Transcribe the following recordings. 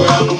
Well,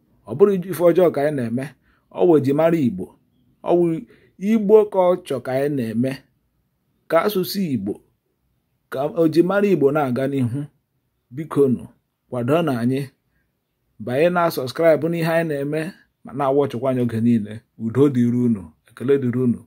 ọ bụrụ ife ọjọọ ka anyị na-eme ọ ji mara igbo ọwụ igbo ka ọ chọ ka anyị na-eme ka asụsụ igbo ka ojimara igbo na-aga n'ihu bikonu kwado na anyị banye na sọskraịbụ n'ihe anyị na-eme ma na-awọchịkwa anyị oge niile udo dịrị unu ekele dịrị unu